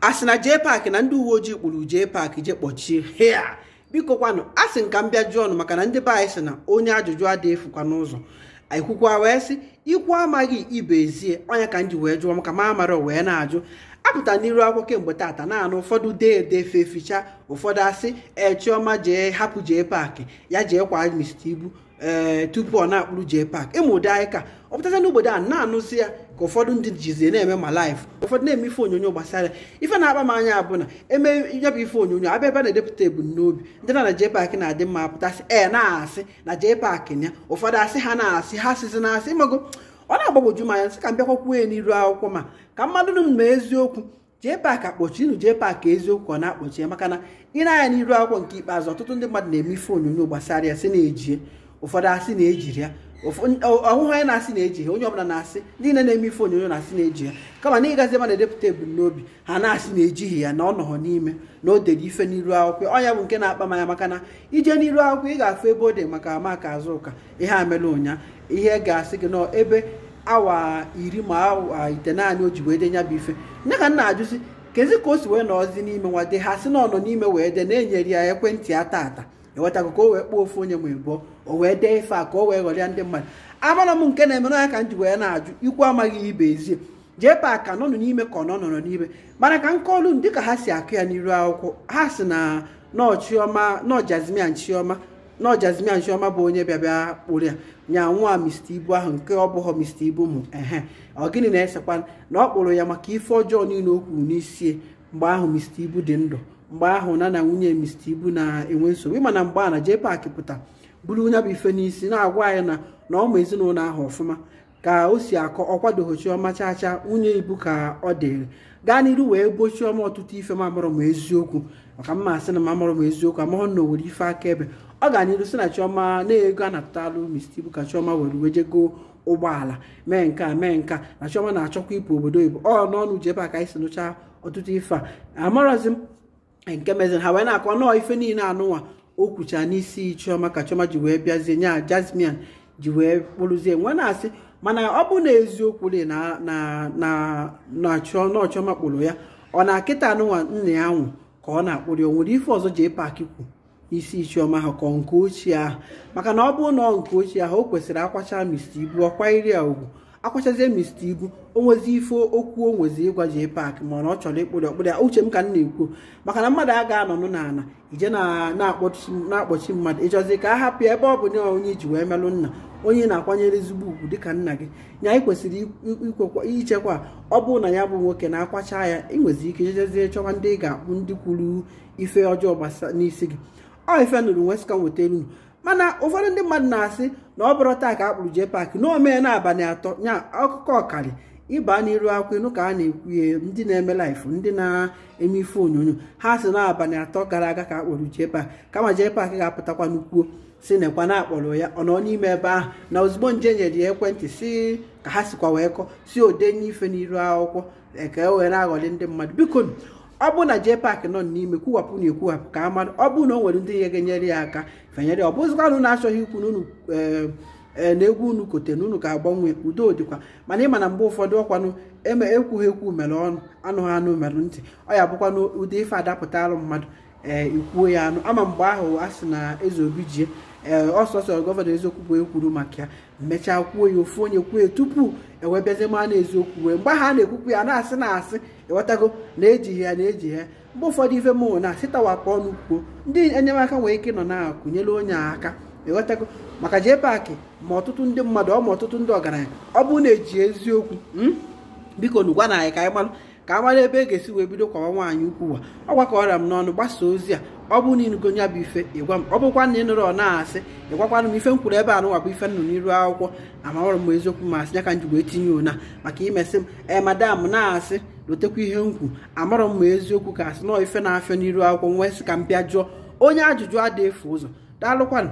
a sị na jee paakị na ndị uwe ojii kpụrụ jee paakị jee kpọchie hea biko kwanụ a sị m ka m bịa jụọ ọnụ maka na ndị be anyị sị na onye ajụjụ adịghị efukwa n'ụzọ ekwukwa wee sị ikwu amaghị ibe ezie onye ka m ji wee jụọ maka ma amara wee na-ajụ apụta n'iru akwụkwọ kemgbe taata naanị ụfọdụ dee ede ficha ụfọdụ asị ee chioma jee hapụ jee paakị ya jee kwa ibu. ee eh, tupu ọ na-akpụrụ jee pak ịmụde e anyị ka ọ pụtacha n'obodo a na-anụzi ya ka ụfọdụ ndị jizie na-eme ma laịf ụfọdụ na-eme ife onyonyo gbasara ife na-akpa m anya abụ na eme ya ife onyonyo abịa ebe na-edepụta ebumnobi ndị na na jee pak na-adị mma pụtasị ee eh, na-asị na jee pak ya ụfọdụ asị ha na-asị ha sizi na-asị ịmago ọ na-agbagwoju m anya nsị ka m bịakwakwuo ya n'iru akwụkwọ ma ka mmadụ m ma eziokwu jee pak akpọchi ịnụ jee pak eziokwu ọ na-akpọchi ya maka na ị na-anya n'iru akwụkwọ nke ikpeazụ ọtụtụ ndị mmadụ na-eme ife onyonyo gbasara ya sị na-ejie ụfọdụ asị na-ejiri ya ọhụhụ anyị na-asị na-eji ha onye ọbụla na-asị niile na-eme ife onyonyo na-asị na-eji ya kama na ịgazi ebe na-edepụta ebumnobi ha na-asị na-ejighị ya na ọ nọghọ n'ime na o dere ife n'iru akwụkwọ ọ ya bụ nke na-akpa manya maka na ije n'iru akwụkwọ ị ga-afụ ebe o dị maka amaka azụ ụka ihe amela ụnya ihe ga-asị gị n'ebe ebe awa iri ma awa ite naanị o ji wee bụ ife nye ka m na-ajụzi kezi ka o si wee nọọzi n'ime nwa de ha sị na ọ nọ n'ime wee de na-enyere ya ekwentị ya taata ịghọtago ka o wee kpọọ ofe onye ma ịbụọ o wee dee ife a ka o wee ghọrịa ndị mmadụ amara m nke na-emenụ ya ka m ji wee na-ajụ ikwu amaghị ibe ezie JPAC ka nọnụ n'ime ka ọ nọ nọrọ n'ime mana ka nkọlu m dịka ha si akụ ya n'iru akwụkwọ ha si na nọchioma nọjazimia nchioma nọjazimia chioma bụ onye bịabịa kpụrụ ya nya nwa Mr Ibu ahụ nke ọ bụghọ Mr Ibu mụ ehe ọ gịnị na-esekwa na ọ kpụrụ ya maka ife ọjọọ niile o kwuru n'isi mgbe ahụ Mr Ibu dị ndụ mgbe ahụ na na nwunye Mr. Ibu na-enwe nsogbu ịma na mgbe a na JPAC pụta buru onye bụ ife n'isi na-agwa anyị na na ọma ezinụlọ ahụ ọfụma ka o si akọ ọkwadoghị Chioma chacha nwunye Ibu ka ọ dịrị gaa n'iru wee gbo Chioma ọtụtụ ife mamụrụ m eziokwu maka mma asị na mamụrụ m eziokwu amahụ na owere ife akaebe ọ ga n'iru sị na Chioma na-ego a natụtalụ Mr. Ibu ka Chioma were wejego ụgbọala mee nke a mee nke a na Chioma na-achọkwa ịpụ obodo oyibo ọ n'ọnụ JPAC anyị si nụcha ọtụtụ ife a amarazị m nke meziri ha wee na-akọ nọọ ife niile anụnwa o kwucha n'isi chioma ka chioma ji wee bịazie nya jasmin ji wee kpụrụzie nwe na-asị mana ọ bụ na eziokwu na chioma kpụrụ ya ọ na akịta anụnwa nna ya nwụ ka ọ na-akpụrụ ya o nwere ife ọzọ jee paaki kwu isi chioma ahụ ka nke ochie ahụ maka na ọ bụ na nke ochie ahụ o kwesịrị akwacha mr ibu ọkwa iri ya ugwu akwachazie mista igwu onwezi ife okwu o ịgwa jee paakị mana ọ chọrọ ịkpụrụ ọkpụrụ ya uche m ka m na-ekwu maka na mmadụ a ga nụ n'ala ije na-akpọchi mmadụ ịchọzi ka a hapụ ebe ọ bụ na onye iji wee melụ nna onye na-akwanyere ezigbo ugwu dịka nna gị ya anyị kwesịrị ichekwa ọ bụrụ na ya bụ nwoke na-akwacha ya ịnwezi ike jejezie chọwa ndị ị ga-akpụ ndị kwuru ife ọjọọ gbasa n'isi gị ọ ife nụrụ nwesịka nweta elu mana ụfọdụ ndị mmadụ na-asị na ọ bụrụ taa ka a kpụrụ jee na omee na abalị atọ nya akụkọ ọkari ịba n'iru akwụ ịnụ ka a na-ekwu ndị na-eme laịfụ ndị na-eme ife onyonyo ha si na abalị atọ gara aga ka a kpụrụ jee JPAC kama paaki ga-apụtakwa n'ukwuo si nekwa na akpọrọ ya ọ nọ n'ime ebe ahụ na ozugbo nje nyere ya ekwentị si ka ha sikwa wee kọ si odenye ife n'iru akwụkwọ eke were aghọli ndị mmadụ biko ọ bụ na pak nọ n'ime kwuwapụ na ekwuwapụ ka a mara ọ bụ na o nwere ndị ihe ga-enyere ya aka fenyere ya ọ bụzikwanụ na-achọghị ikwu n'unu eh, eh, na egwu unu kote na unu ga-agbanwe udo dịkwa mana ịma na mgbe ụfọdụ ọkwanụ eme ekwughị ekwu mere ọnụ anụghị anụ mere ntị ọ ya bụkwanụ ụdị ife alụ mmadụ ee eh, ikwuo ya anụ ama mgbe ahụ a sị na eze obi jie ee ọsọsọ gọvanọ eziokwu bụ ekwuru maka ya mechaa kwuo ya ofu onye kwuo ya tupu ewebịazie ma na eziokwu wee mgbe ahụ a na-ekwukwu ya na-asị na asị ịghọtago na eji ya na-eji ya mgbe ụfọdụ ife mụ na sitawapụ ọnụ kwuo ndị enyemaka nwere ike nọ na-akụnyere onye aka ịghọtago maka jee paakị ma ọtụtụ ndị mmadụ ọ ma ọtụtụ ndị ọgaranya ọ bụrụ na eji eziokwu hmm? biko nu gwa na anyị ka anyị malụ ka a mara ebe e ga-esi wee bido kwawa nwaanyị ukwu ụwa ọ gwakọrọ m n'ọnụ gbasa ozi a ọ bụ na ịnụgo ya bụ ife ịgwa m ọ bụkwa na ịnụrụ ọ na-asị ịgwakwana m ife m kwuru ebe a nụwakwa ife nụ n'iru akwụkwọ amaọrụ m eziokwu ma asị ya ka m jigwa etinye ona maka imesị m ee madam na-asị lotekwa ihe m kwu amarọ m eziokwu ka asị nọọ ife na-afịa n'iru akwụkwọ nwee sị ka m bịa jụọ onye ajụjụ adịghị efu ụzọ daalụkwanụ